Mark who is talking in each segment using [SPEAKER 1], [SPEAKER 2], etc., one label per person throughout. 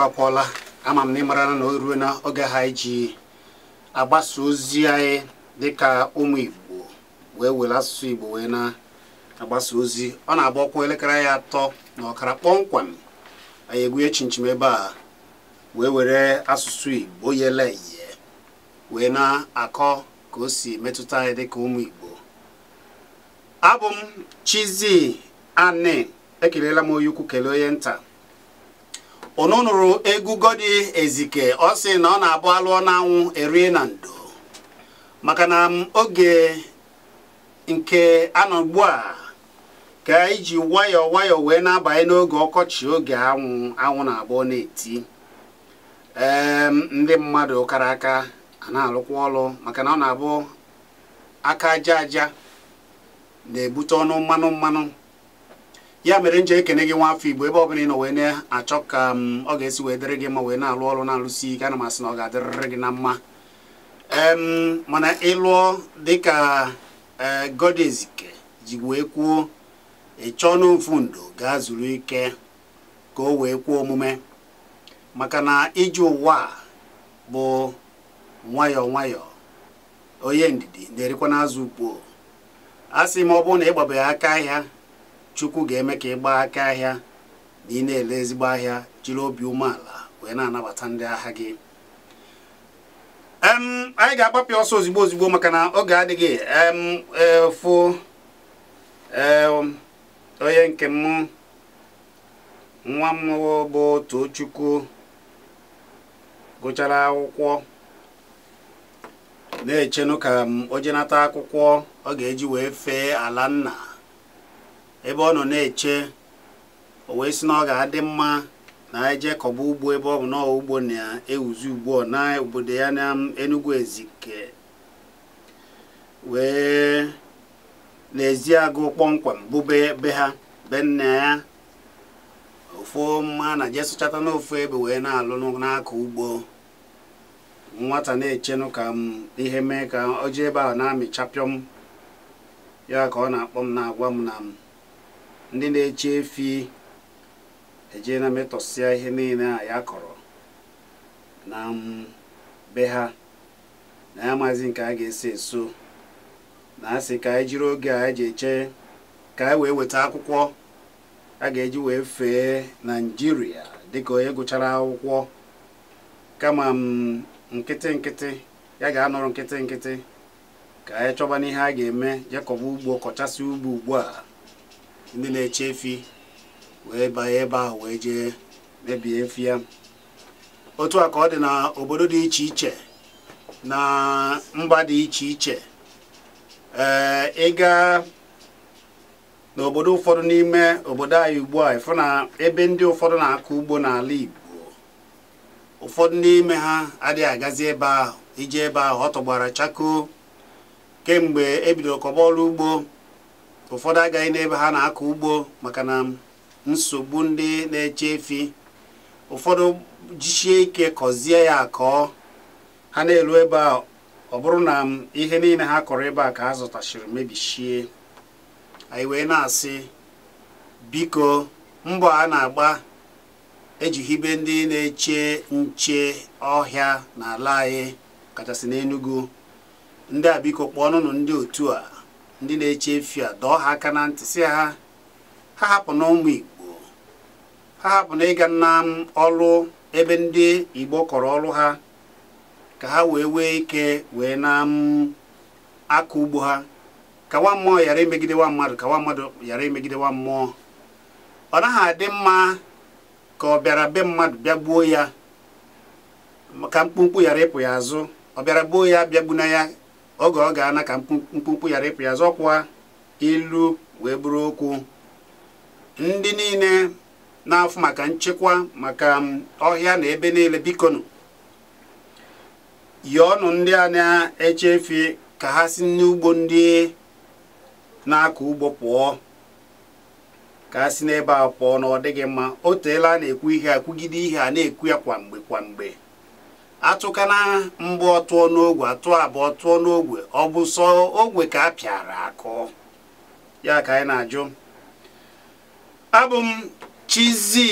[SPEAKER 1] akwụkwọ ama m na na o ruo na oge ha iji agbasa ozi anyị dịka ụmụ Igbo wee were asụsụ Igbo wee na-agbasa ozi ọ na-agba ọkwa elekere anyị atọ na ọkara kpọmkwem anyị egwunye chinchim ebe a wee were asụsụ Igbo yele iye wee na-akọ ka o si metụta anyị dịka ụmụ Igbo abụ m chizi Ani ekelela m onye ukwu kelee onye nta unu nuru egwu di Ezike ọ sị na ọ na-abụ alụọ n'anwụ erie na ndo maka na oge nke anọ ugbu a ka iji wayo wayo wee na-abanye n'oge ọkọchị oge anwụ anwụ na abuo na-eti ee ehm, ndị mmadụ kara aka a na-alụkwa maka na ọ na-abụ aka aja aja na-ebute onu mmanu mmanu. ya mere nje ekene gị nwa afọ igbo ebe ọbụla ị nọ wee na-achọ ka m mm, ọ ga-esi wee dịrị gị ma wee na-alụ ọrụ na-alụsi ike ana m asị na ọ ga-adịrịrị gị na mma mana ịlụọ dịka e, Godezike ji wee kwuo ịchọọ n'ofu ndo gaa zuru ike ka o wee kwuo omume maka na iji ụwa bụ nwayọọ nwayọọ onye ndidi na-erikwa n'azụ ukpo a sị m ọ bụrụ na ịgbabeghị aka ahịa chukwu ga-eme ka ị gbaa aka ahịa na ị na-ele ezigbo ahịa jiri obi umeala wee na-anabata ndị agha gị anyị ga-agbapịa ọsọ ozigbo ozigbo maka na oge adịghị efu e, e, onye nke m nwa m bụ Tochukwu gụchara akwụkwọ na-echenụ ka m ojenata akwụkwọ ọ ga-eji wee fee ala nna ebe ọ nọ na-eche o wee sị na ọ ga-adị mma na eje kọba ugbo ebe ọ bụ na ugbo na-ewuzi ugbu na obodo ya na Enugu Ezike wee n'ezi agụ kpọmkwem bụbe be ha be nna ya ofu mma na je sụchata n'ofu ebe wee na-alụ n'aka ugbo nwata na-echenụ ka m ihe mee ka ọ jee ebe ahụ na-amịchapịọm ya ka ọ na-akpọ m na-agwa m na m ndị na-eche efi eje na metọsịa ihe niile a ya kọrọ na be ha na ya maazị nke a ga-esi eso na asị ka anyị jiri oge a eji eche ka anyị wee weta akwụkwọ a ga-eji wee fee naijiria dịka onye gụchara akwụkwọ kama nkịtị nkịtị ya ga-anọrọ nkịtị nkịtị ka anyị chọba n'ihe a ga-eme jekọba ugbo kọchasị ugbo ugbu a ndị na-eche efi wee banye ebe ahụ wee jee mebie efi ya otu a ka ọ dị na obodo dị iche iche na mba dị iche iche ee ịga n'obodo ụfọdụ n'ime obodo anyị ugbu a ịfụ na ebe ndị ụfọdụ na-akọ ugbo n'ala Igbo ụfọdụ n'ime ha adịghị agazi ebe ahụ ije ebe ahụ ọ tọgbara chakoo kemgbe ebidoro kọba ọrụ ugbo ụfọdụ agaghị n'ebe ha na-akọ ugbo maka na nsogbu ndị na-eche efi ụfọdụ jichie ike kọzie ya akọọ ha na-elu ebe a ọ bụrụ na ihe niile ha kọrọ ebe a ka ha zụtachiri mebishie anyị wee na-asị biko mbọ a na-agba ejighibe ndị na-eche nche ọhịa n'ala anyị kachasị n'Enugu ndị a biko kpọọnụnụ ndị otu a ndị na-eche efi a dọọ ha aka na ntị si ha ha hapụ na ụmụ igbo ha hapụ na ịga na ọrụ ebe ndị igbo kọrọ ọrụ ha ka ha wee wee ike wee na aka ugbo ha ka nwa mmụọ ghara emegide nwa mmadụ ka nwa mmadụ ghara emegide nwa mmụọ ọ naghị adị mma ka ọ bịara be mmadụ bịa gbuo ya ka mkpumkpu ghara ịpụ ya azụ ọ bịara gbuo ya bịa gbuna ya oge ọ ga-ana ka mkpụmkpụ yara ịpụ ya zọkwa ilu wee bụrụ okwu ndị niile na-afụ maka nchekwa maka ọhịa na ebe niile bikonu yọọnụ ndị a na-echefi ka ha si n'ugbo ndị na-akọ ugbo pụọ ka ha si n'ebe a pụọ na ọ dịghị mma o teela na-ekwu ihe a ihe a na-ekwu ya kwamgbe kwamgbe. atụkana mgbe ọtụọ n'ogwe atụ abụọ tụọ n'ogwe ọ bụ sọ ogwe ka a pịara akụ ya ka anyị na-ajụ abụ m Chizzy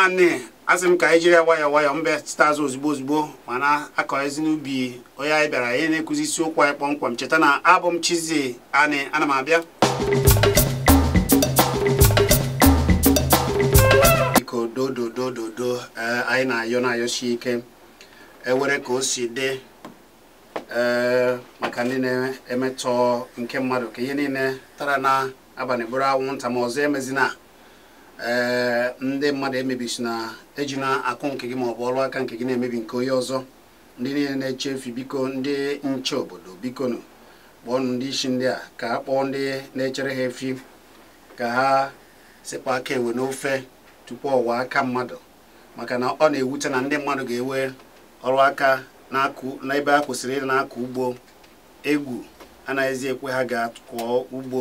[SPEAKER 1] Ani asị m ka anyị jiri ya nwayọ nwayọọ mbe staz azụ ozugbo ozugbo mana akọ ezi n'ubi onye anyị bịara anyị na-ekuzi isiokwu anyị kpọmkwem cheta na abụ m Chizzy Ani ana m abịa biko dododododo eh, anyị na-ayọ na ike ewere ka o si dị ee eh, maka ndị na-emetọ nke mmadụ ka ihe niile tara na abalị bụrụ anwụnta ma ọzọ emezina ee eh, ndị mmadụ emebisi na ejina akụ nke gị ma ọ bụ ọrụ aka nke gị na-emebi nke onye ọzọ ndị niile na eche efi biko ndị nche obodo bikonu kpọọnụ ndị isi ndị a ka a kpọọ ndị na-echere ha efi ka ha sekwa aka enwe n'ofe tupu ọwa aka mmadụ maka na ọ na-ewute na ndị mmadụ ga-ewe ọrụ aka n'ebe a kwụsịrị ịdị na-akọ ugbo egwu anaghịzi ekwe ha ga-akọ ugbo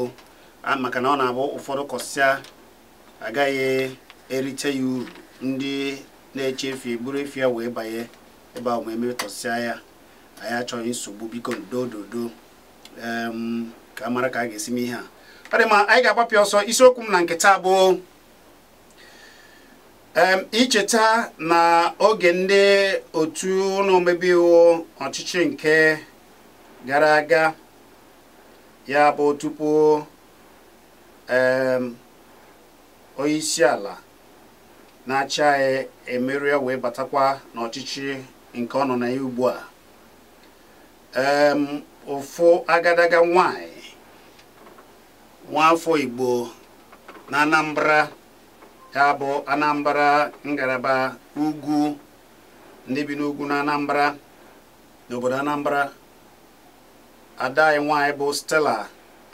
[SPEAKER 1] maka na ọ na-abụ ụfọdụ kọsịa agaghị erite ya uru ndị na-eche efi buru efi ya wee banye ebe ahụ ma emetọsịa ya anyị achọghị nsogbu biko dododo ka a mara ka a ga-esi m ihe a ọ dị ma anyị ga-agbapịa ọsọ isiokwu m na nketa abụọ. icheta na oge ndị otu ụlọ iwu ọchịchị nke gara aga ya bụ tupu onye isi ala na-achị anyị emerie wee batakwa n'ọchịchị nke ọ nọ na ya ugbu a ụfụ agadaga nwanyị nwaafọ Igbo na Anambra ya bụ anambra ngalaba ugwu ndị bi n'ugwu na anambra n'obodo anambra adaghị nwanyị bụ stella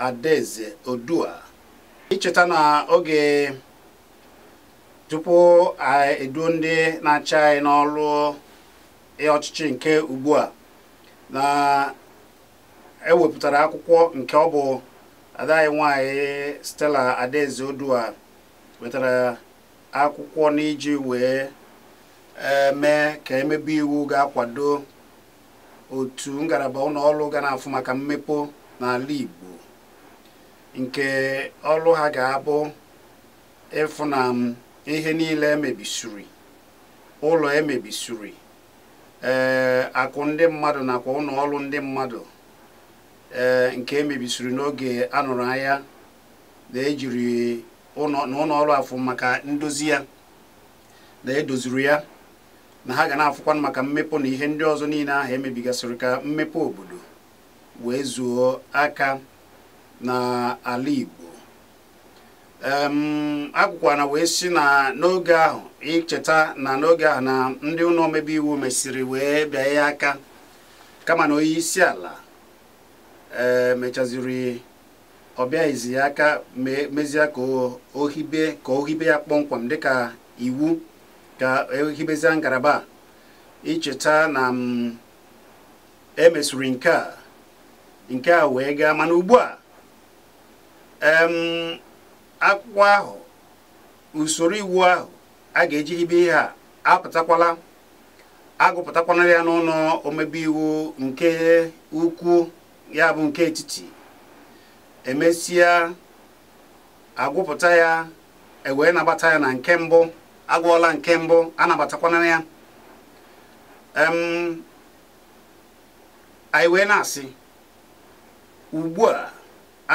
[SPEAKER 1] adaeze odua icheta na oge tupu eduo ndị na-achị anyị n'ọlụ ọchịchị nke ugbu a na ewepụtara akwụkwọ nke ọ bụ adaghị nwanyị stella adaeze odua wetara akwụkwọ n'iji wee e, mee ka emebe iwu ga-akwado otu ngalaba ụlọọrụ ga na-afụ maka mmepe n'ala Igbo nke ọrụ ha ga-abụ ịfụ na ihe niile emebisiri ụlọ emebisiri ee akụ ndị mmadụ nakwa ọrụ ndị mmadụ e, nke emebisiri n'oge anụrụ anya na ejiri na ụlọ ọrụ afọ maka ndozi ya na edoziri ya na ha ga na afụkwa maka mmepụ na ihe ndị ọzọ niile ahụ emebigasịrị ka mmepe obodo wee zuo aka na ala Igbo akwụkwọ na wee si na n'oge ahụ icheta na n'oge ahụ na ndị ụlọ omebe iwu mesịrị wee bịa ya aka kama na onye isi ala eh, mechaziri ọ bịaghịzi ya aka mezie ka ohibe ka ohibe ya kpọmkwem dịka iwu ka ehibezie ngalaba icheta na mm, emesiri nke a nke a wee gaa mana ugbu a akwụkwọ ahụ usoro iwu ahụ a ga-eji hibe ihe a apụtakwala agụpụtakwana ya n'ụlọ omebe iwu nke ukwu ya bụ nke etiti emesịa agwụpụta ya ewee nabata ya na nke mbụ agwụọla nke mbụ anabatakwana ya anyị wee na-asị ugbu a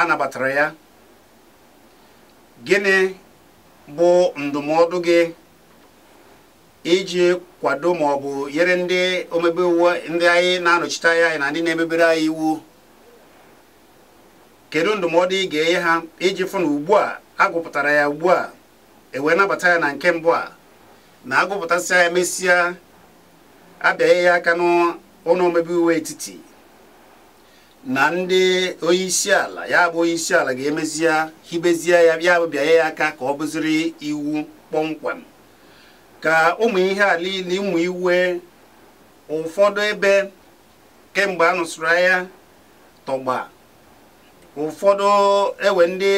[SPEAKER 1] anabatara ya gịnị bụ ndụmọdụ gị iji kwado ma ọ bụ nyere ndị omebe iwu ndị anyị na-anọchite anya anyị na ndị na-emebere anyị iwu kedu ndụmọdụ ị ga-enye ha iji fụ na ugbu a agụpụtara ya ugbu a ewee nabata ya na nke mbụ a na agụpụtasịa ya mesịa abịaghị ya aka n'ụlọ omebe iwu etiti na ndị onye isi ala ya bụ onye isi ala ga-emezie hibezie ya ya bụ ya aka ka ọ bụziri iwu kpọmkwem ka ụmụ ihe a niile ụmụ iwe ụfọdụ ebe kemgbe a nụsụrụ ya tọgba ụfọdụ ewe ndị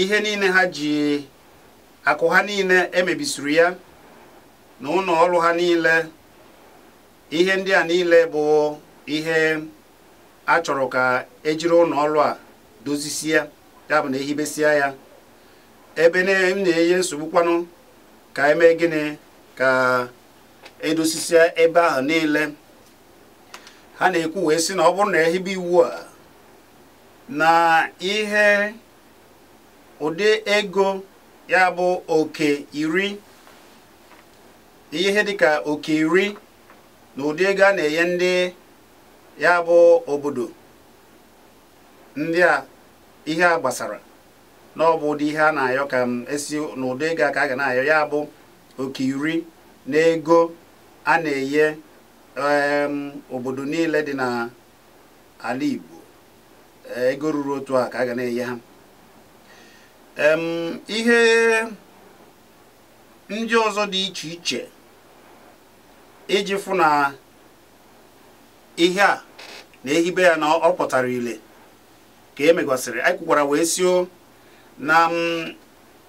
[SPEAKER 1] ihe niile ha ji akụ ha niile emebisiri ya na ụlọ ha niile ihe ndị a niile bụ ihe a chọrọ ka ejiri ụlọ a dozisie ya bụ na ehibesia ya ebe m na-enye nsogbu kwanu ka eme gịnị ka edosisia ebe ahụ niile ha na-ekwu wee sị na ọ bụrụ na ehibe iwu a na ihe ụdị ego ya bụ oke iri ihe dịka oke iri na ụdị ego a na-enye ndị ya bụ obodo ndị a ihe a gbasara na ọ bụ ụdị ihe a na-ayọ ka m esi n'ụdị ego ka a ga na-ayọ ya bụ oke iri na ego a na-enye obodo niile dị n'ala Igbo Eh, ego ruru otu a ka a ga na-enye ha ihe ndị ọzọ dị iche iche iji fụ na ihe a na-ehibe ya na ọ pụtara ile ka e megasịrị anyị kwukwara wee sio na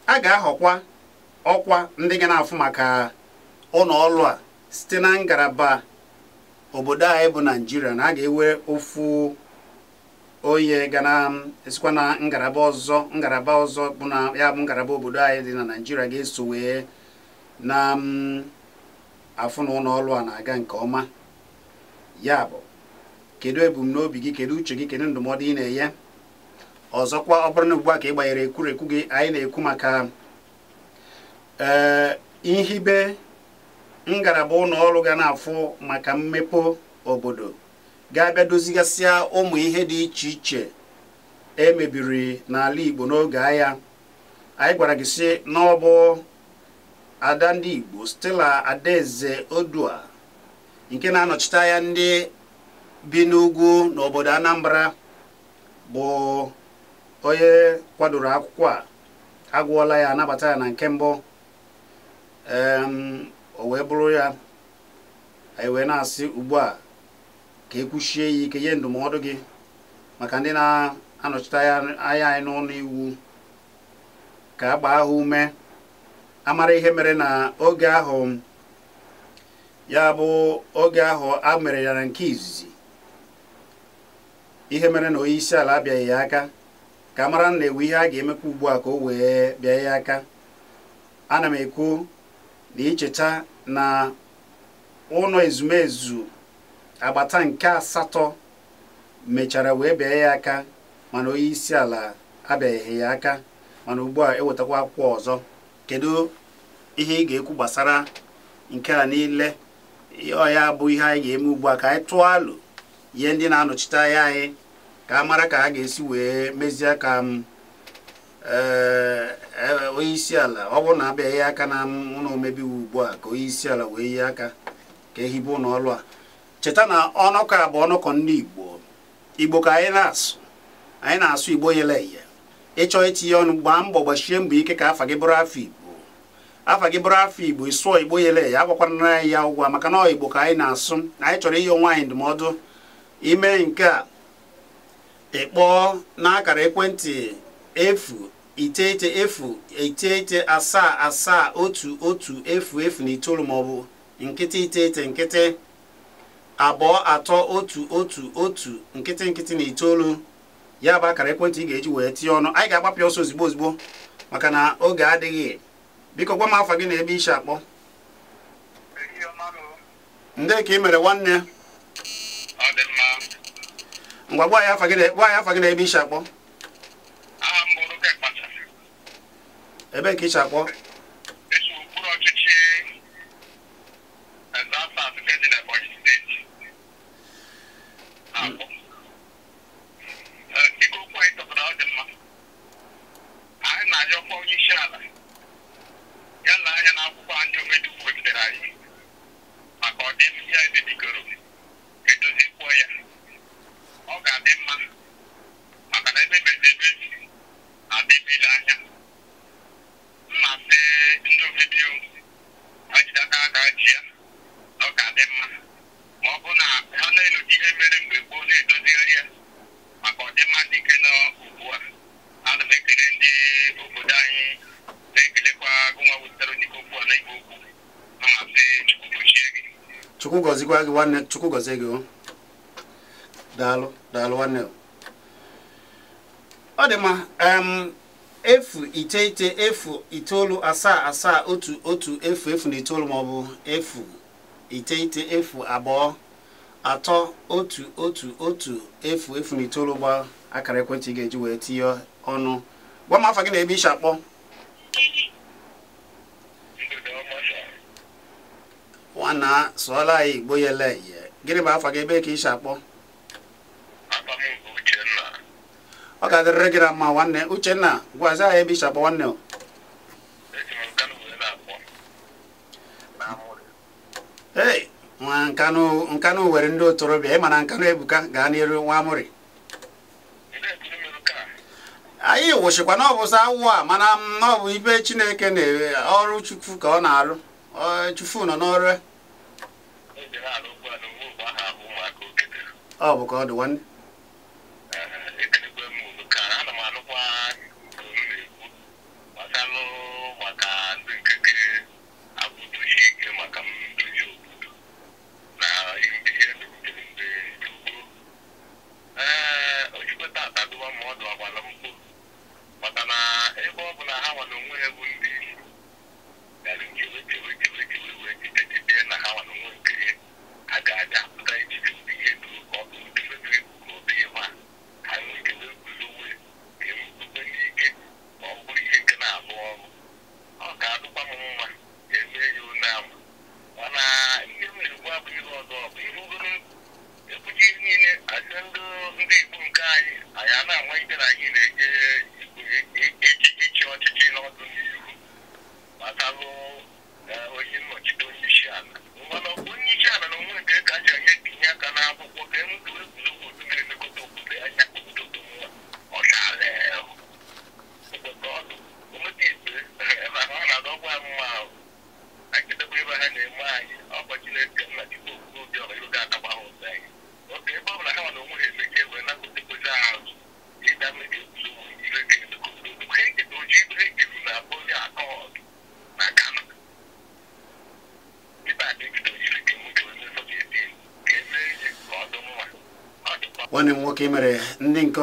[SPEAKER 1] a ga-ahọkwa ọkwa ndị ga na-afụ maka ụlọ ọrụ a site na ngalaba obodo anyị bụ naijiria na a ga-ewe ofu oye ga na esikwa na ngalaba ọzọ ngalaba ọzọ bụ na ya bụ ngalaba obodo anyị dị na naijiria ga-eso wee na mm, afụ na ụlọ ọrụ a na-aga nke ọma ya bụ kedu ebumnobi gị kedu uche gị kedu ndụmọdụ ị na-enye ọzọkwa ọ bụrụ na ugbu a ka ị gbanyere ekwurekwu gị anyị na-ekwu maka ee eh, ihibe ngalaba ụlọ ọrụ ga na-afụ maka mmepe obodo ga-abịa dozigasịa ụmụ ihe dị iche iche e mebiri n'ala Igbo n'oge agha anyị gwara gị sị n'ọbụ ada ndị Igbo Stella Adaeze Odua nke na-anọchite anya ndị bi n'ugwu n'obodo Anambra bụ onye kwadoro akwụkwọ a agwụọla ya nabata ya na nke mbụ o wee bụrụ ya anyị wee na-asị ugbu a ka e kwuchie ya ike nye ndụmọdụ gị maka ndị na-anọchite anya anyị n'ụlọ iwu ka a gbaa ha ume amara ihe mere na oge ahụ ya bụ oge ahụ a mere ya na nke izizi ihe mere na onye isi ala abịaghị ya aka ka mara na ewu ihe a ga-emekwa ugbu a ka o wee bịa ya aka ana m ekwu na icheta na ụlọ ezumezu agbata nke asatọ mechara wee bịa ya aka mana onye isi ala abịaghị ya aka mana ugbu a ewetakwa akwụkwọ ọzọ kedu ihe ị ga-ekwu gbasara nke a niile ya bụ ihe anyị ga-eme ugbu a ka anyị tụọ alụ ihe ndị na-anọchite anya anyị ka a mara ka a ga-esi wee mezie ka m um, eh, eh, onye isi ala ọ bụrụ na abịaghị aka na ụlọ omebe iwu ugbu a ka onye isi ala wee yie aka ka ehibe ụlọ ọrụ a cheta na ọnụkọ a bụ ọnụkọ ndị igbo igbo ka anyị na-asụ anyị na-asụ igbo ihe ịchọ itinye ọnụ gbaa mbọ gbachie mbọ ike ka afa gị bụrụ afọ igbo afa gị bụrụ afọ igbo ịsụọ igbo yeleya agbakwana anyị ya ụgwọ maka na igbo ka anyị na-asụ anyị chọrọ inye onwe anyị ndụmọdụ ime nke a na n'akara ekwentị efu iteghete efu iteghete asaa asaa otu otu efu efu na itoolu maọbụ nkịtị iteghete nkịtị abụọ atọ otu otu otu nkịtị nkịtị na itoolu ya bụ akara ekwentị ị ga-eji wee tinye ọnụ anyị ga-agbapịa ọsọ ozigbo ozigbo maka na oge adịghị biko gwa m afọ gị na ebe ishi akpọ ndị ka ị mere nwanne ngwa gwa ya afọ gị na ebe ishi akpọ ebe ka ishi akpọ gị nwanne chukwu gị daalụ daalụ ọ dị mma efu iteghete efu itoolu asaa asaa otu otu efu efu na itoolu maọbụ efu iteghete efu abụọ atọ otu otu otu efu efu na itoolu gba akara ekwentị ị ga-eji wee tinye ọnụ gwa m afọ gị na ebe isi akpọ na sụọla anyị igbo yele ihe gịnị bụ afa gị ebe ka ị akpọ ọ ga-adịrịrị gị na mma nwanne uchenna gwazi anyị ebe ishakpọ akpọ nwanne o ee nwa nkanụ nkanụ were ndị otorobịa ịma na nkanụ ebuka gaa n'iru nwa amụrị anyị wụchịkwa na ọ awụ a mana na ọ bụ ibe chineke na ọrụ chukwu ka ọ na-arụ chufu nọ n'ọrụ e. ọ bụkwa ọ dị nwanne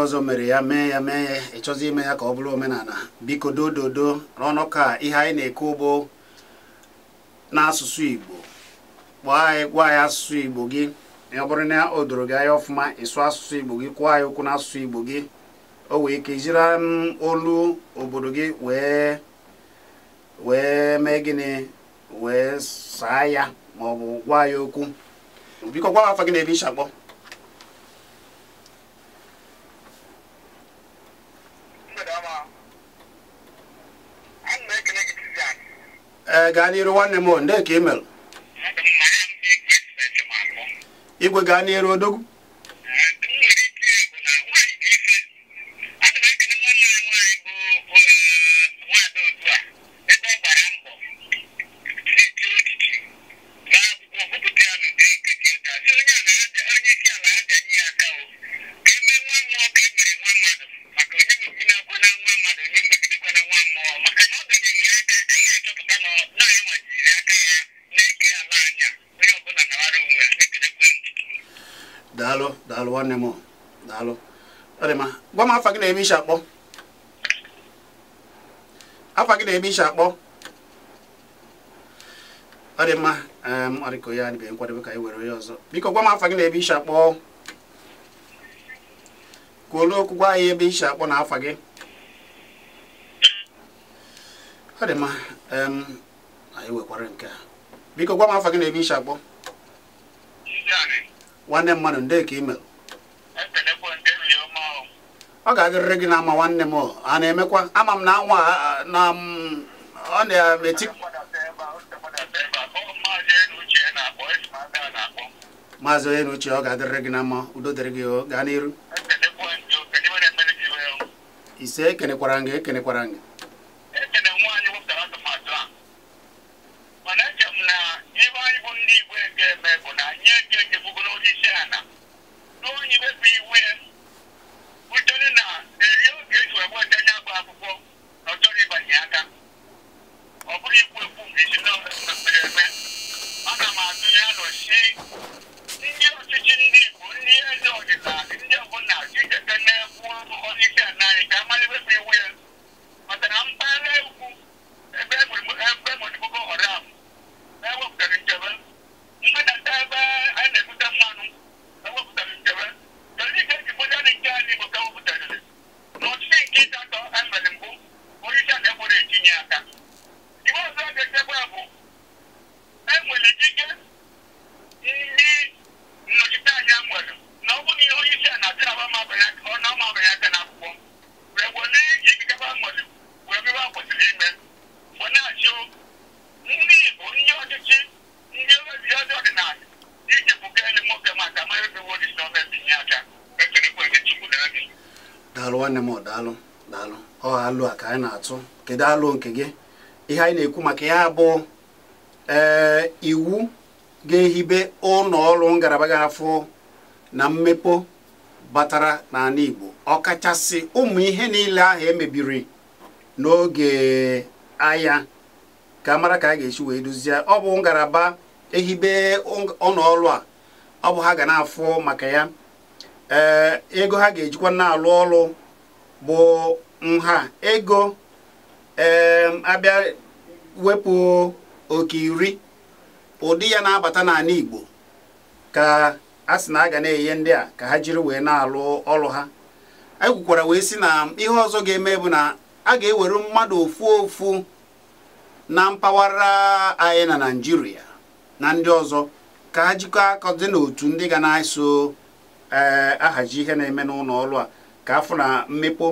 [SPEAKER 1] ọzọ mere ya mee ya mee ya ịchọzi ime ya ka ọ bụrụ omenala biko dododo n'ọnụ ka ihe anyị na-ekwu bụ n'asụsụ Igbo kpọọ anyị gwa anyị asụsụ Igbo gị ọ bụrụ na o doro gị anya ọfụma ịsụ asụsụ Igbo gị kwụọ anyị ụkwụ n'asụsụ Igbo gị o wee ike mm, olu obodo gị wee wee mee gịnị wee saa ya ma ọ bụ gwa ya okwu biko gwa afọ gị na ebe kpọọ. gaa n'iru nwanne m ndee ka ị mere igwe gaa n'iru odogwu nwanne m daalụ gwa m afa gị na-eme isi akpọ afa gị na-eme isi akpọ ọ dị mma ọrịko ya adịbeghị nkwadebe ka anyị were ya ọzọ biko gwa m afa gị na-ebe isi akpọ kwuolu okwu gwa anyị ebe isi akpọ na afa gị ọ dị mma anyị wekwara nke a biko gwa m afa gị na-ebe isi akpọ nwanne mmadụ nde ka imel ọ ga-adịrịrị gị na ama nwanne m a na-emekwa ama m na anwa ọ na-eti maazị onye n'uche ọ ga-adịrịrị gị na mma udo dịrị gị gaa n'iru ise ekenekwara gị ekenekwara gị daalụ nwanne m daalụ daalụ ọ alụ a ka anyị na-atụ kedu alụ nke gị ihe anyị na-ekwu maka ya bụ ee eh, iwu ga-ehibe ụlọ ọrụ ngalaba ga-afụ na mmepụ batara n'ala Igbo ọkachasị ụmụ ihe niile ahụ emebiri n'oge agha ka mara ka a ga-esi wee duzie ọ bụ ngalaba ehibe ụlọ a ọ bụ ha ga na-afụ maka ya Eh, ego ha ga-ejikwa na-alụ ọrụ bụ nha ego abịa wepụ oke iri ụdị ya na-abata n'ala Igbo ka a sị na a ga na-enye ndị a ka ha jiri wee na-alụ ọrụ ha egwukwara wee sị na ihe ọzọ ga-eme bụ na a ga-ewere mmadụ ofu ofu na mpaghara anyị na Naịjirịa na ndị ọzọ ka ha jikọ dị n'otu ndị ga na-eso ee eh, ihe na-eme n'ụlọ ọrụ a ka afọ na mmekpo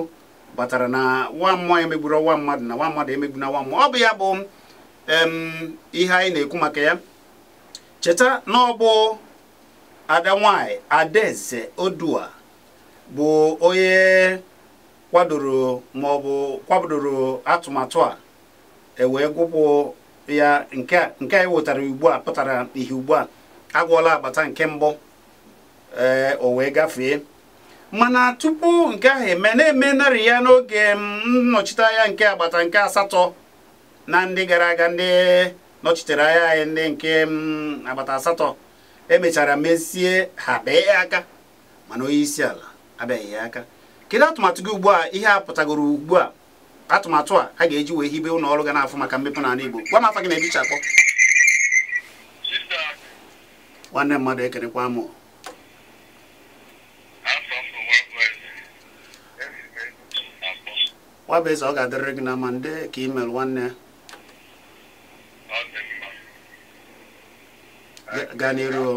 [SPEAKER 1] batara na nwa mmụọ emegburu nwa mmadụ na nwa mmadụ emegbu na nwa mmụọ ọ bụ ya bụ ihe anyị na-ekwu maka ya cheta na ọ bụ ada nwanyị adaeze odua bụ onye kwadoro ma ọ atụmatụ a ewee gwụpụ ya nke a wetara ugbu a pụtara ihe ugbu a agwụọla agbata nke mbụ ee eh, o wee gafee mana tupu nke ahụ eme na-eme narị ya n'oge mm, nnọchite anya nke agbata nke asatọ na ndị gara aga ndị nọchitere anya anyị ndị nke mm, agbata asatọ emechara mesie ha bee aka mana onye isi ala abịaghị ya aka kedu atụmatụ gị ugbu a ihe a pụtagoro ugbu a atụmatụ a a ga-eji wee hibe ụlọ ọrụ ga na-afụ maka mmepe n'ala Igbo gwa m afa gị na-ebichapụ nwanne mmadụ ekerekwa m nwa bụ eze ọ ga-adịrịrị gị na ama ndị ka imel nwanne ya gaa n'iru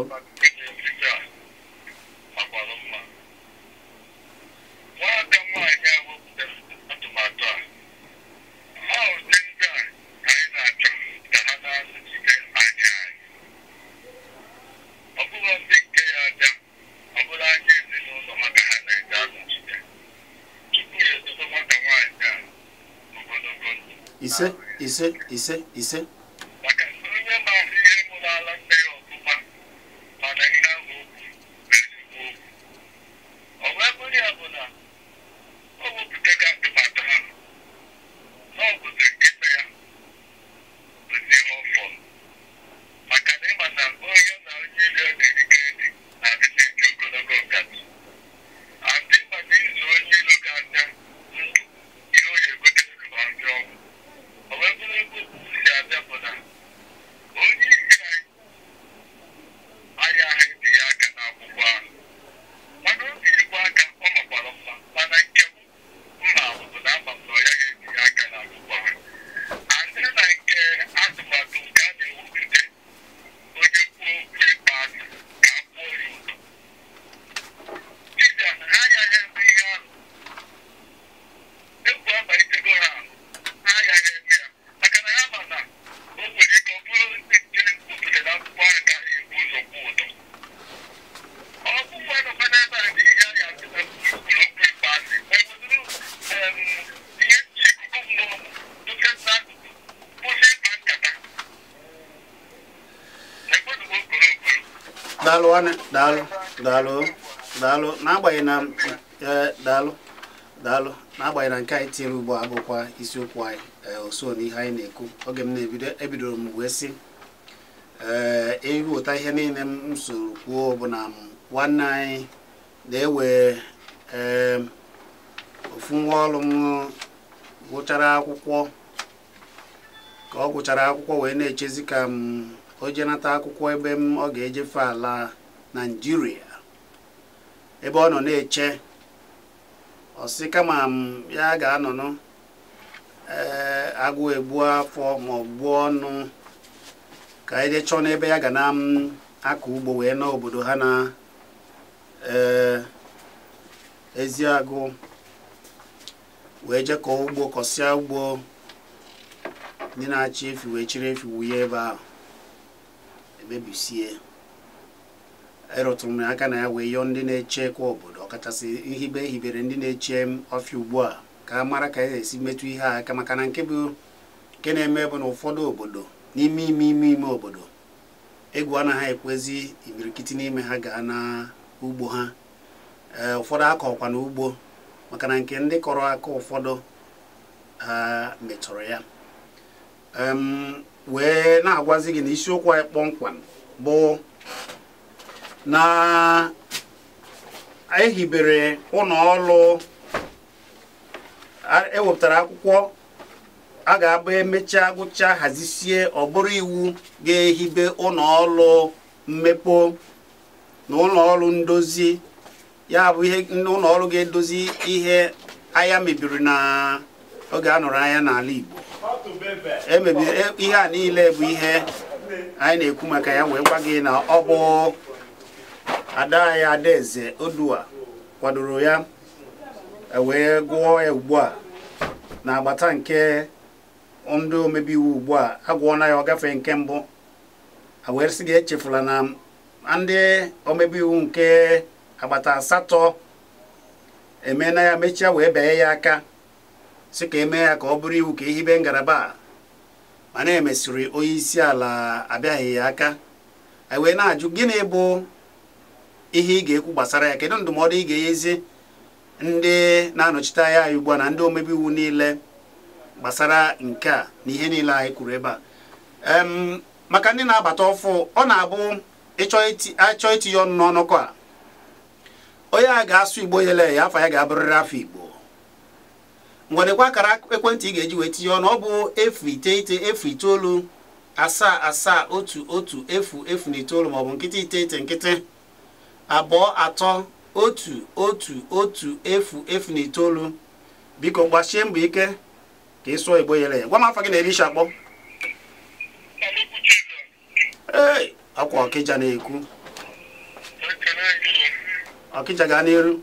[SPEAKER 1] ise ise ise ise.
[SPEAKER 2] Bakın bunun bahsediyor bu
[SPEAKER 1] daalụ daalụ daalụ n'agbanyeghị na daalụ e, daalụ n'agbanyeghị na nke anyị tinyere ugbu a bụkwa isiokwu anyị ọsọ e, na ihe anyị na-ekwu oge m na-ebido ebidoro m wee sị ee ịghọta ihe niile m soro kwuo bụ na nwanne anyị na-ewe ee ofu nwa ọrụ m gụchara akwụkwọ ka ọ gụchara akwụkwọ wee na-echezi ka m o jenata akwụkwọ ebe m ọ ga-ejefe ala naijiria ebe ọ nọ na-eche ọsị kama ya ga-anọnụ eh, agụ egbu afọ ma gbuo ọnụ ka anyị jee n'ebe ya ga na akọ ugbo wee nọ obodo ha na eh, ezi agụ wee je kọọ ugbo kọsịa ugbo ndị na-achị efi wee chiri efi wunye ebe ahụ emebisie erụtụrụ m aka na ya wee yọọ ndị na eche kwa obodo ọkachasị nhibe ehibere ndị na-eche ọfịa ugbu a ka a mara ka a e esi metụ ihe a aka maka na nke bụ nke na-eme bụ na ụfọdụ obodo n'ime ime ime ime obodo egwu anaghị ekwezi imirikiti n'ime ha gaa na ugbo ha ee ụfọdụ akọkwa na ugbo maka na nke ndị kọrọ aka ụfọdụ ha metụrụ ya wee na-agwazi gị na isiokwu anyị kpọmkwam bụ na ehibere ụlọ ọrụ ewepụtara akwụkwọ a ga-abụ emechaa gụcha hazisie ọ bụrụ iwu ga-ehibe ụlọ ọrụ mmepe na ụlọ ọrụ ndozi ya bụ ihe ụlọ ọrụ ga-edozi ihe ahịa mebiri na oge a nụrụ anya n'ala Igbo emebiri e, ihe a niile bụ ihe anyị na-ekwu maka ya wee gwa gị na ọ bụ ada ada adaeze odua kwadoro ya e wee gụọ ya ugbu a na agbata nke ndị omebi iwu ugbu a agwụọna ya ọgafe nke mbụ wee gị echefula na ndị omebi iwu nke agbata asatọ na ya mechie wee banye ya aka sị ka eme ya ka ọ bụrụ iwu ka ehibe ngalaba mana emesịrị onye isi ala abịaghị ya aka e wee na-ajụ gịnị bụ ihe ị ga-ekwu gbasara ya kedu ndụmọdụ ị ga-enyezi ndị na-anọchite anya anyị ugbu a na ndị omebe iwu niile gbasara nke a na ihe niile anyị kwuru ebe a maka ndị na-abata ọfụ ọ na-abụ ịchọ itinye ọnụ n'ọnụkọ a onye a ga-asụ igbo yele ya afọ ya ga-abụrịrị afọ igbo ngwadekwa akara ekwentị ị ga-eji wee tinye ọnụ ọ bụ efu iteghete efu itoolu asaa asaa otu otu efu efu na itoolu maọbụ nkịtị iteghete nkịtị abụọ atọ otu otu otu efu efu na itoolu biko gbasie mbọ ike ka ịsụọ igbo yere ya gwa m afọ gị na elisha kpọ ee ọkwa ọkịja na-ekwu ọkịja gaa n'iru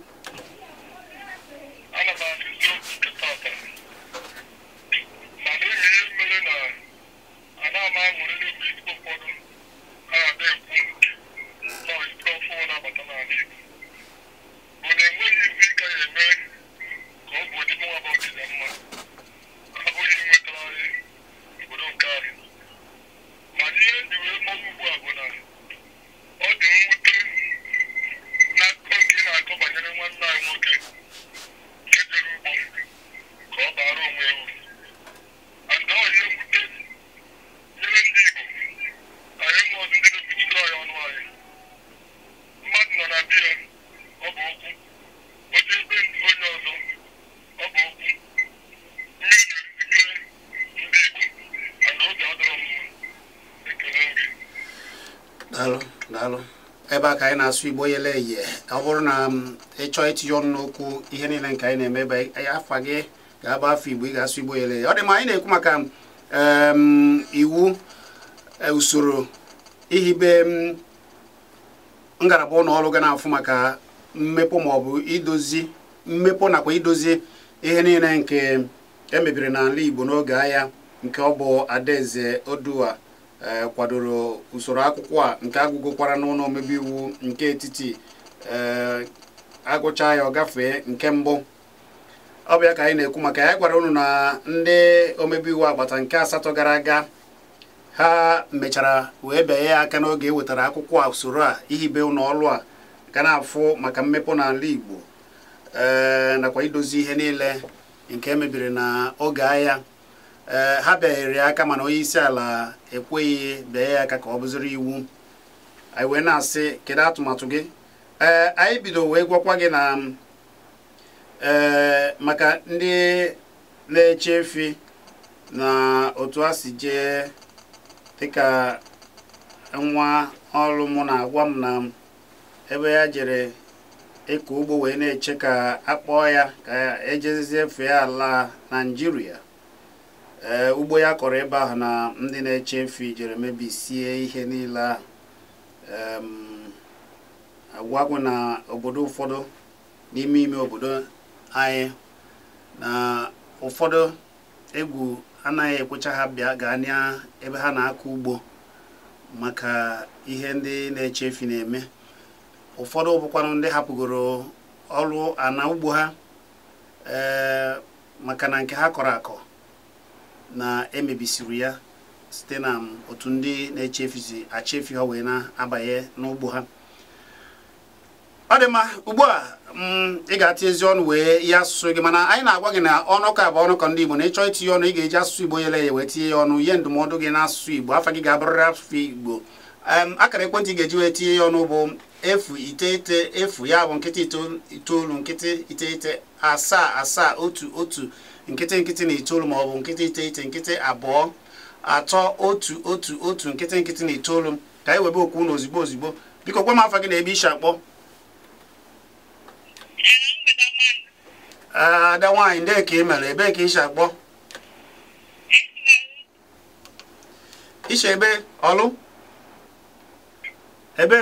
[SPEAKER 1] na-asụ igbo yele eye ọ bụrụ na um, ịchọọ itinye ọnụ n'okwu ihe niile nke anyị na-eme ebe afa gị ga-agba afọ igbo ị ga-asụ igbo yele eye ọ dị ma anyị na-ekwu maka um, um, iwu e, usoro ihibe ngalaba ụlọ ọrụ ga na-afụ maka mmepụ maọbụ idozi mmepụ nakwa idozi ihe niile nke emebiri n'ala igbo n'oge agha nke ọ bụ adaeze odua E, kwadoro usoro akwụkwọ a nke agụgụkwara n'ụlọ omebe iwu nke etiti e, agụcha ya ọ gafee nke mbụ ọ bịa ka anyị na-ekwu maka ya gwara unu na ndị omebe iwu agbata nke asatọ gara aga ha mechara wee bee ya aka n'oge e wetara akwụkwọ a usoro a ihibe ụlọ ọlụ a ka na-afụ maka mmepe n'ala Igbo e, nakwa idozi ihe niile nke emebiri na oge agha ee eh, ha ya aka mana onye isi ala ekweghị bịa ya aka ka ọ bụziri iwu anyị wee na-asị kedu atụmatụ gị ee eh, anyị bido wee gwakwa gị na eh, maka ndị na-eche efi na otu a si jee dịka nwa ọrụ mụ na-agwa m na ebe ya jere ịkọ ugbo wee na-eche ka akpọọ ya ka ejezie efe ala Naijiria. ee eh, ugbo ya kọrọ ebe ahụ na ndị na-eche efi jere mebisie ihe niile ahụ agwagwụ na obodo ụfọdụ n'ime ime obodo anyị na ụfọdụ egwu anaghị ekwecha ha bịa gaa na ebe ha na-akọ ugbo maka ihe ndị na-eche efi na-eme ụfọdụ bụkwanụ ndị hapụgoro ọrụ ana ugbo ha ee eh, maka na nke ha kọrọ akọ na emebisiri ya site na um, otu ndị na-echefuzi achefu ha wee na-abanye n'ugbo ha ọ dị mma ugbu a um, ị ga atụ ezi ọnụ wee ya asụsụ gị mana anyị na-agwa gị na ọnụ ka bụ ọnụ ka ndị Igbo na ịchọ itinye ọnụ ị ga-eji asụsụ Igbo yele ya wee tinye ya ọnụ ihe ndụmọdụ gị n'asụsụ Igbo afa gị ga-abụrịrị asụsụ Igbo um, akara ekwentị ị ga-eji wee tinye ya ọnụ bụ efu iteghete efu ya bụ nkịtị itoolu nkịtị iteghete asaa asaa otu otu nkịtị nkịtị na itoolu ma ọ bụ nkịtị iteghete nkịtị abụọ atọ otu otu otu nkịtị nkịtị na itoolu ka anyị webe okwu na ozigbo ozigbo biko gwa m afa gị na ebe ishi akpọ ah, ada nwaanyị ndị ka ị mere ebee ka ishi akpọ ishi ebe ọlụ ebe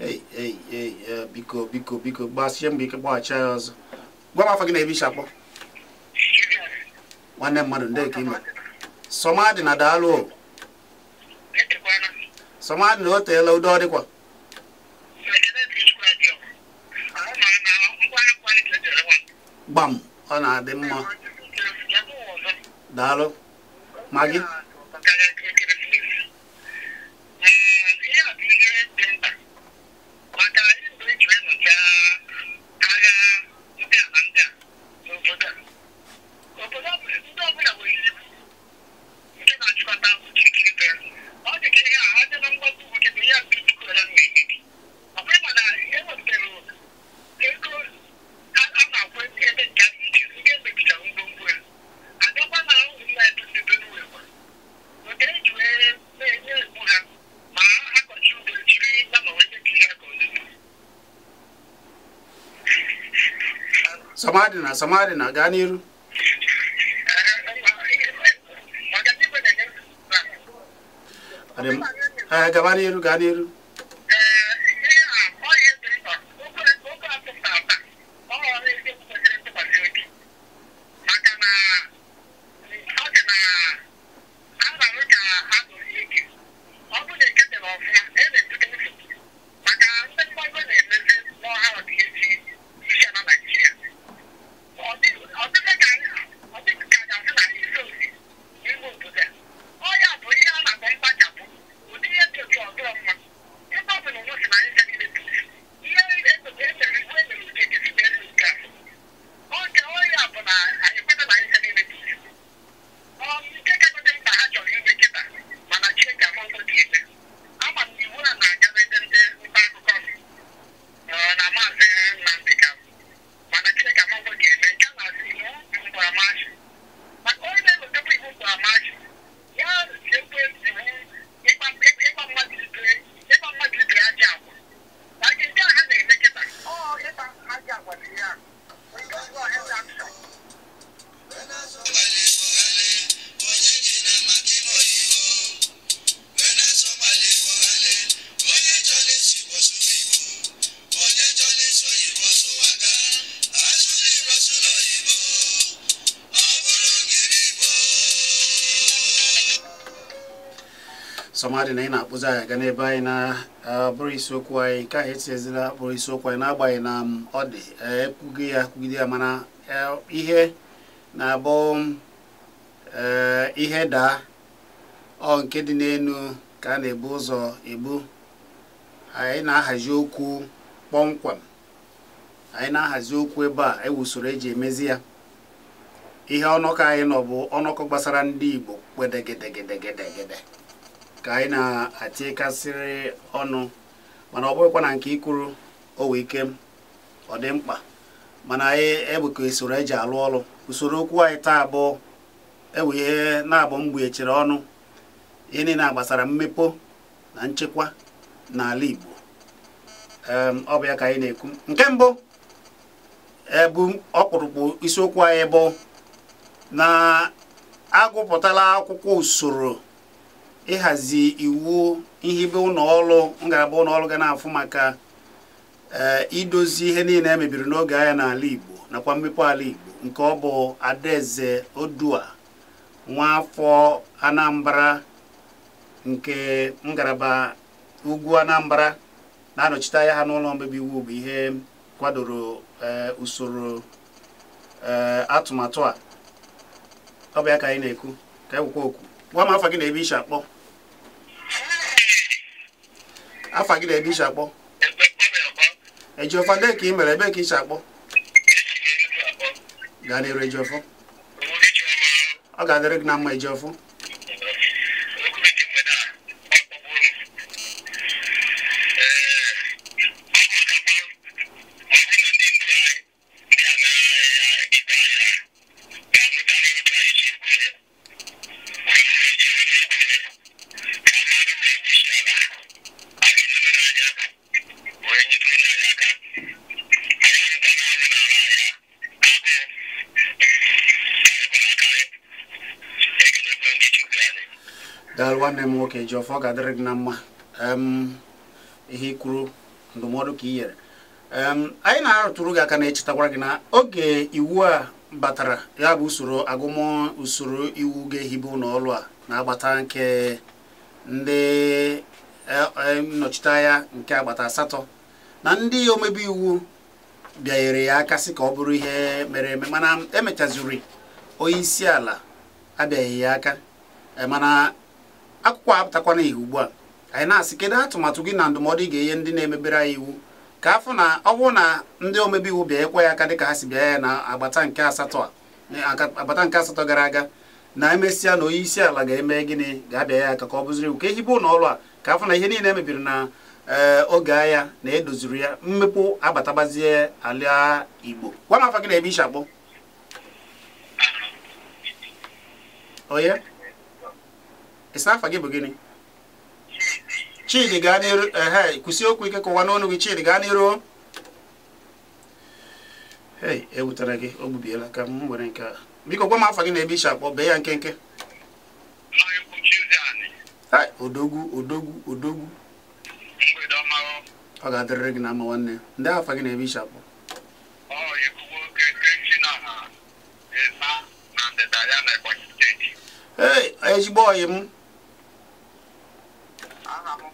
[SPEAKER 1] eh, biko biko biko gbasie mbọ ike gbaghachi ya ọzọ gwa ma fagina ebi shakpo nwanne mmadụ ndị ka ime somadị na daalụ somadị na o teela udo ọ dịkwa gbam ọ na-adị mma daalụ ma gị amadi na samari na gaa n'iru gaba n'iru gaa n'iru sọmadị na ị na-akpụzi anyị aga n'ebe anyị na-abụrụ isiokwu anyị ka anyị etinyezila akpụrụ isiokwu anyị n'agbanyeghị na ọ dị ekwughị ya kwugide ya mana ihe na-abụ ihe daa ọ nke dị n'elu ka a na-ebu ụzọ ebu anyị na-ahazi okwu kpọmkwem anyị na-ahazi okwu ebe a ewu usoro eji emezi ya ihe ọnọkọ anyị nọ bụ ọnọkọ gbasara ndị Igbo kwedegedegedegede ka anyị na-atikasịrị ọnụ mana ọ bụghịkwa na nke ikwuru owe ike ọ dị mkpa mana anyị ebuka usoro eji alụ ọrụ usoro okwu anyị taa abụọ ewee na-abụ mgbuechere ọnụ ihe niile gbasara mmepe na nchekwa n'ala Igbo ọ bụ ya ka anyị na-ekwu nke mbụ ebu ọkpụrụkpụ isiokwu anyị bụ na agụpụtala akwụkwọ usoro ịhazi iwu ihibe ụlọọrụ ngalaba ụlọọrụ ga na-afụ maka eh, idozi ihe niile e mebiri n'oge agha n'ala Igbo nakwa mmepe ala Igbo nke ọ bụ Adaeze Odua nwaafọ Anambra nke ngaraba ugwu Anambra na-anọchite anya ha n'ụlọ mmebi iwu bụ ihe kwadoro eh, usoro eh, atụmatụ a ọ bụ ya ka anyị na-ekwu ka ekwukwa okwu gwa m afọ gị na ebe isi akpọ afa gị na-ebe isi akpọ ejiọfa dee ka ị mere ebe ka isi akpọ gaa n'eru ejiọfọ ọ ga-adịrị gị na mma ejiọfọ nwoke ji ọfọ ga-adịrị gị na mma ihe ikwuru ndụmọdụ ka i nyere anyị na-arụtụrụ gị aka na-echetakwara gị na oge iwu a batara ya bụ usoro agụmọ usoro iwu ga-ehibe ụlọọrụ a na-agbata nke ndị e, e, nnọchiteanya nke agbata asatọ na ndị omebe iwu bịanyere ya aka sị ka ọ bụrụ ihe mere eme mana emechaziri onye isi ala abịaghị ya aka e, mana akwụkwọ apụtakwana ihe ugbu a anyị na-asị kedu atụmatụ gị na ndụmọdụ ị ga-enye ndị na-emebere anyị iwu ka afọ na ọ bụrụ na ndị omebe iwu bịanyekwa ya aka dịka ha si bịa ya na agbata nke asatọ agbata nke asatọ gara aga na emesịa na onye isi ala ga-eme gịnị ga-abịa ya aka ka ọ bụziri iwu ka ehibe ụlọ ọrụ a ka afọ na ihe niile emebiri na eh, oge agha na edoziri ya mmepụ agbatabazie ala Igbo gwa m afọ gị na-ebe ishi akpọ onye isi gị bụ gịnị chidi gaa n'iru ehe kwụsị okwu ike kụwa n'ọnụ gị chidi gaa n'iru ei ewutere gị o gbubiela ka m nke a biko gwa m afa gị na ebe akpọ bee ya nkenke odogwu odogwu odogwu ọ ga-adịrịrị gị na ama nwanne ndị afa gị na ebe akpọ ee ezigbo ọyị m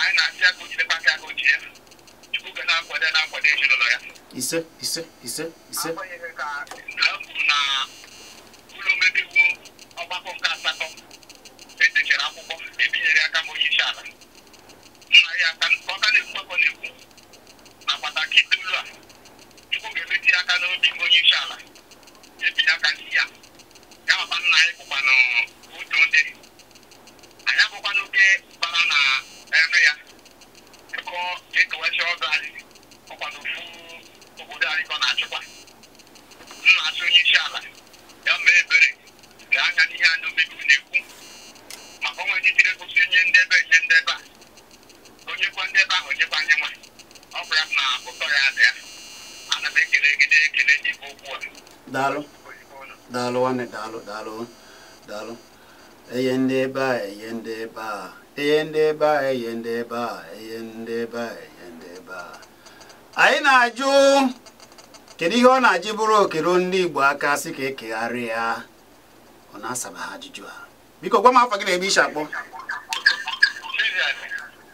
[SPEAKER 2] anyị na-asị aka ojidekwa aka aka ojide chukwu ga na-akwado na-akwado ezinụlọ ya
[SPEAKER 1] ise ise ise ise agbanyeghị
[SPEAKER 2] ka ha na ụlọ omebeiwu ọgbakọ nke asatọ edechara akwụkwọ ebinyere aka ma onye isi ala nna ya ka ọka na-ekwu akọ na-ekwu na pataki ụlọ a chukwu ga-emeti aka n'obi ma onye isi ala ebinye aka ndị ya ya ọba nna anyị bụkwanụ otu ndị anyị abụkwana oke bara na eme ya ịkọ ekewachi ọzọ anyị ọkwado ofu obodo anyị ka na-achịkwa nna-achị onye isi ala ya mee ebere ga anya n'ihe anya omegbu na-ekwu maka ọnwa ejitire gosi onye ndebe ndị ndebe a onyekwa ndebe ahụ onyekwa anyị nwa
[SPEAKER 1] ọ bụrụ na ụtọ ya dị ya ana m ekele gị na-ekele n'ikpe okwu a daalụ daalụ nwanne daalụ daalụ daalụ enye ndị ebe a enye ndị ebe a eyendeba eyendeba eyendeba ndeba anyị na-ajụ kedu ihe ọ na-ajụ bụrụ okero ndị Igbo aka sị ka ekegharị ya ọ na-asaba ha ajụjụ a biko gwa m afọ gị na-ebe isi akpọ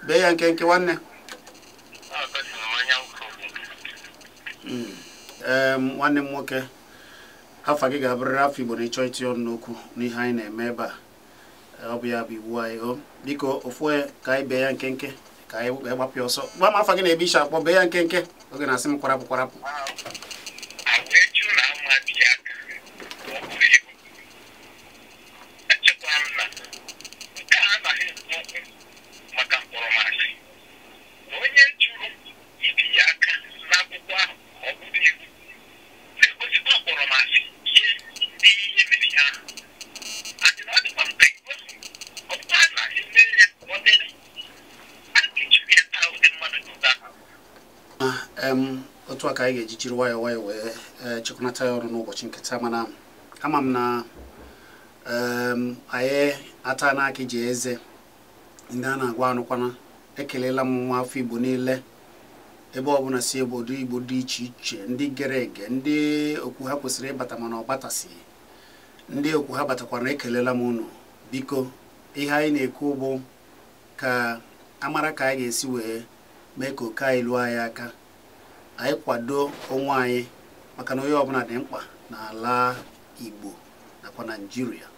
[SPEAKER 1] bee ya nke nke nwanne hmm. nwanne m nwoke afọ gị ga-abụrịrị afọ Igbo na ịchọ iti ọnụ n'okwu n'ihe anyị na-eme ebe a ọ bụ ya bụ iwu anyị o biko ofu ka anyị bee ya nkenke ka anyị gbapịa ọsọ gba m afa gị na-ebe iche akpọ bee ya nkenke oge na-asị m kwarapụ kwarapụ ka anyị ga-eji jiri nwayọọ wee eh, chekwanata ya ọrụ n'ụbọchị nkịta mana ama m na ehm, anyị ata na ji eze ndị a na-agwa anụkwana ekelela m nwa afọ igbo niile ebe ọbụla si obodo igbo dị iche iche ndị gere ege ndị okwu ha kwesịrị ịbata mana ọ batasịghị ndị okwu ha batakwara ekelela m ụnụ biko ihe anyị na-ekwu bụ ka amara ka anyị ga-esi wee mee ka oke anyị lụọ anyị aka anyị kwado onwe anyị maka na onye ọbụla dị mkpa n'ala Igbo nakwa naijiria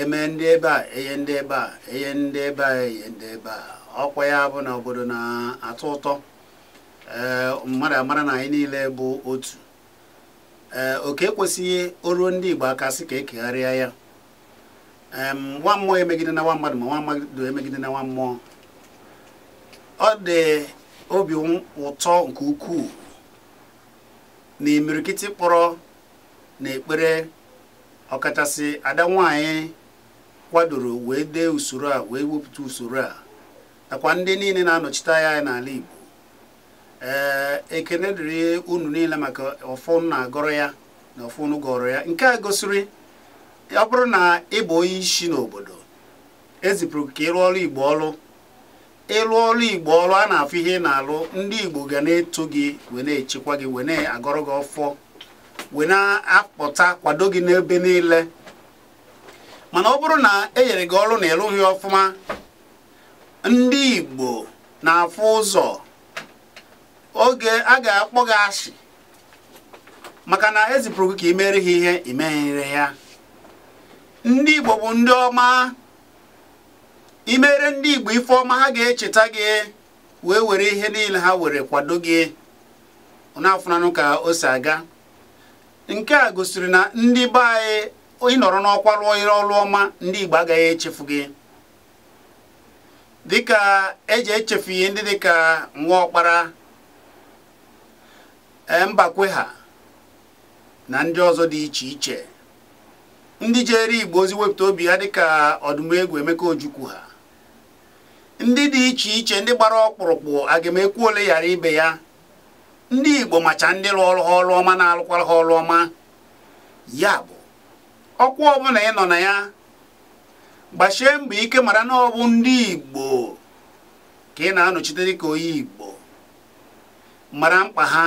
[SPEAKER 1] eme ndị ebe a enye ndị ebe a enye ndị ebe a enye ndị ebe a ọkwa ya bụ na obodo na-atọ ụtọ ee mmadụ amara na anyị niile bụ otu ee oke ekwesịghị oruo ndị Igbo aka sị ka ekegharịa ya nwa mmụọ emegide na nwa mmadụ ma nwa mmadụ emegide na nwa mmụọ ọ dị obi ụtọ nke ukwuu na imirikiti kpọrọ na ekpere ọkachasị ada nwanyị kwadoro wee dee usoro a wee wepụta usoro a nakwa ndị niile na-anọchite anya n'ala Igbo ee ekene dịrị unu niile maka ọfụnụ na-agọrọ ya na ọfụnụ gọrọ ya nke a gosiri ọ bụrụ na ị bụ onye isi n'obodo ezipụrụ ka ịrụ ọrụ Igbo ọrụ ịlụ ọrụ igbo ọrụ a na-afụ ihe ị na-alụ ndị igbo ga na-eto gị we na-echekwa gị we na-agọrọ gị ọfọ wee na akpọta kwado gị n'ebe niile mana ọ bụrụ na e nyere gị ọrụ na ịlụghị ọfụma ndị igbo na-afụ ụzọ oge a ga-akpọ gị asị maka na ezipụrụ gị ka imere ha ihe imeghere ya ndị igbo bụ ndị ọma imere ndị Igbo ife ọma ha ga-echeta gị wee were ihe niile ha were kwado gị n'afụnanụ ka o si aga nke a gosiri na ndị be anyị ịnọrọ n'ọkwa rụọ ire ọma ndị Igbo agaghị echefu gị dịka eji echefu ihe ndị dịka ọkpara e, mbakwe ha na ndị ọzọ dị iche iche ndị jere Igbo ozi wepụta obi ha dịka ọdụmegwu Emeka Ojukwu ha ndị dị iche iche ndị gbara ọkpụrụkpụ agamekwu ole yara ibe ya ndị igbo macha ndị lụọrụ ha ọrụ na-alụkwara ha ọrụ ọma ya bụ ọkwa ọbụla ị nọ na ya gbachie mbọ ike mara na ọ bụ ndị igbo ka ị na-anọchite dịka onye igbo mara mkpa ha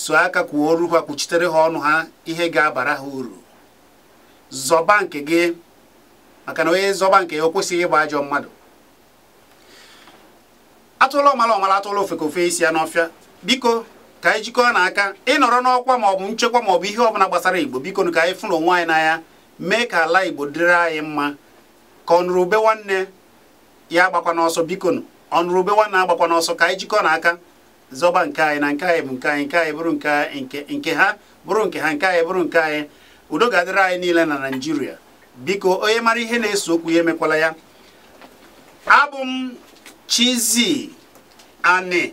[SPEAKER 1] so aka kwuo oru ha kwuchitere ha ọnụ ha ihe ga-abara ha uru zọba nke gị maka na onye zọba nke ya o kwesịghị ịgba ajọ mmadụ atụla ọmala ọmala atụla ofeke ofe isi ya n'ọfịa biko ka anyị jikọọ n'aka ịnọrọ n'ọkwa maọbụ nchekwa maọbụ ihe ọbụla gbasara igbo biko ka anyị fụrụ onwe anyị n'anya mee ka ala igbo dịrị anyị mma ka ọnụrụbe nwanne ya agbakwa n'ọsọ bikonu ọnụrụbe nwanne agbakwa n'ọsọ ka anyị n'aka zọba nke anyị na nke anyị bụ nke anyị nke anyị bụrụ nke ha bụrụ nke ha nke anyị bụrụ nke anyị udo ga-adịrị anyị niile na naijiria biko onye mara ihe na-eso okwu ya emekwala ya abụ m Tizi. ane